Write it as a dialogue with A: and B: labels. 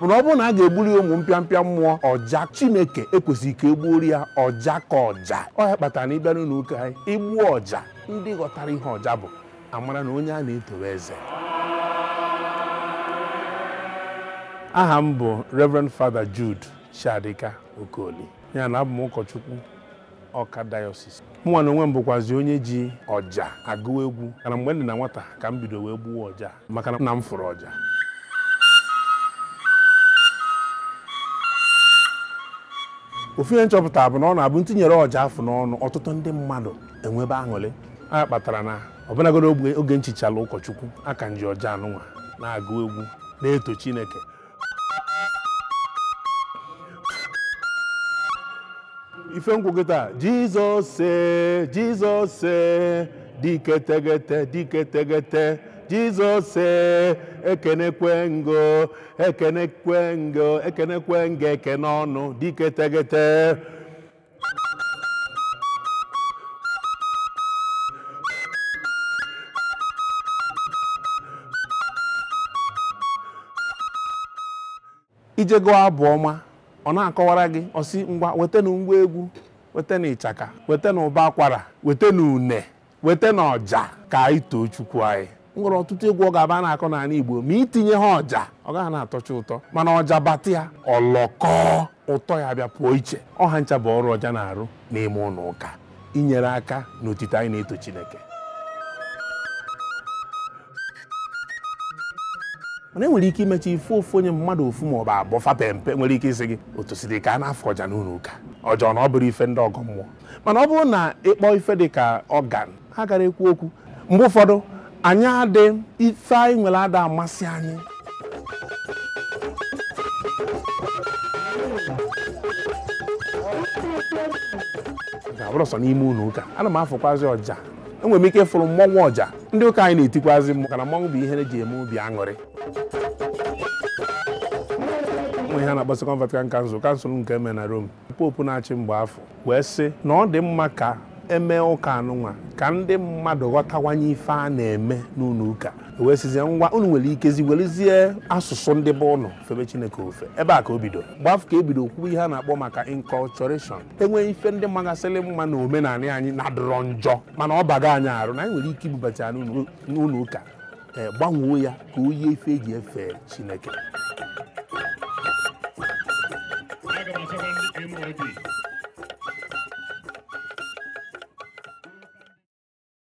A: mana ọ bụrụ na a ga-egburi ya ụmụ mpịampịa mmụọ ọja chineke ekwesịghị ka egbuori ya ọja ka ọja ọ ya kpatara na ịbịa n'ụlọ anyị igbuo ọja ndị ghọtara ihe ọja bụ amara na onye a na-etowe eze aha m bụ Reverend Father Jude Chiadika Okoli ya na abụ m ụkọchukwu ọka dayọsis mụnwa na onwe m bụkwazi onye ji ọja agụ egwu kana mgbe m na nwata ka m bido wee ọja maka na m fụrụ ọja ofu ihe nchọpụta bụ na ọ na-abụ ntinyere ọja afọ n'ọnụ ọtụtụ ndị mmadụ enwebe aṅụrị a kpatara na ọbụlagoro oge nchichala ụkọchukwu aka nji ọja anụnwa na-agụ egwu na-eto Chineke ife ngwụgụ taa jizọs e, jizọs ee dike jizọs e, ekenekwe ngo ekenekwe ngo ekenekwe ngo ekene ọnụ dike tegete ijego abụ ọma ọ na-akọwara gị ọsị ngwa na ngwa egwu wetanụ ịchaka na ụba akwara na une wetanụ ọja ka anyị too chukwu anyị m nwere ọtụtụ egwu ọ ga-aba na-akọ n'ala Igbo ma itinye ha ọja ọ gaghị na-atọcha ụtọ mana ọja batị ya ọlọkọ ụtọ ya bịa pụọ iche ọha ncha bụ ọrụ ọja na-arụ n'ime ụlọ ụka inyere aka n'otite anyị na-eto Chineke mana enwere ike imechi ife ofu onye mmadụ ofu ma ọ bụ abụọ fape nwere ike isi gị otu si dị ka a na-afọ ọja n'ụlọ ụka ọjọọ na ọ bụrụ ife ndị ọgọ mmụọ mana ọ bụrụ na ịkpọ ife dị ka ọgan ha gara ekwu okwu mgbe ụfọdụ anyị adị ife anyị nwere ada amasị anyị ga-abụrụ sọ n'ime ụlọ ụka ana m afụkwazị ọja enwere m ike ịfụrụ mmọnwụ ọja ndị ụka anyị na-etikwazi maka na mmọnwụ bụ ihe eji eme obi aṅụrị ụmụ ihe na-agbasa Vatican Council kansụl nke eme na Rome popu na-achị mgbe afọ wee sị na ọ dị mma ka emee ụka anụnwa ka ndị mmadụ ghọtawanye ife a na-eme n'ụlọ ụka wee sizie ngwa unu nwere ikezi nwerezie asụsụ ndị bụ ụnọ febe chineke ofe ebe a ka o bido gbafu ka ebido kwuwe ihe a na-akpọ maka inculturation enweghị ife ndị magasịrị mma na omenala anyị na-adọrọ njọ mana ọ baga anyị arụ na anyị nwere ike ibubata n'ụlọ ụka ee gbanwee ya ka o yie ife eji efe chineke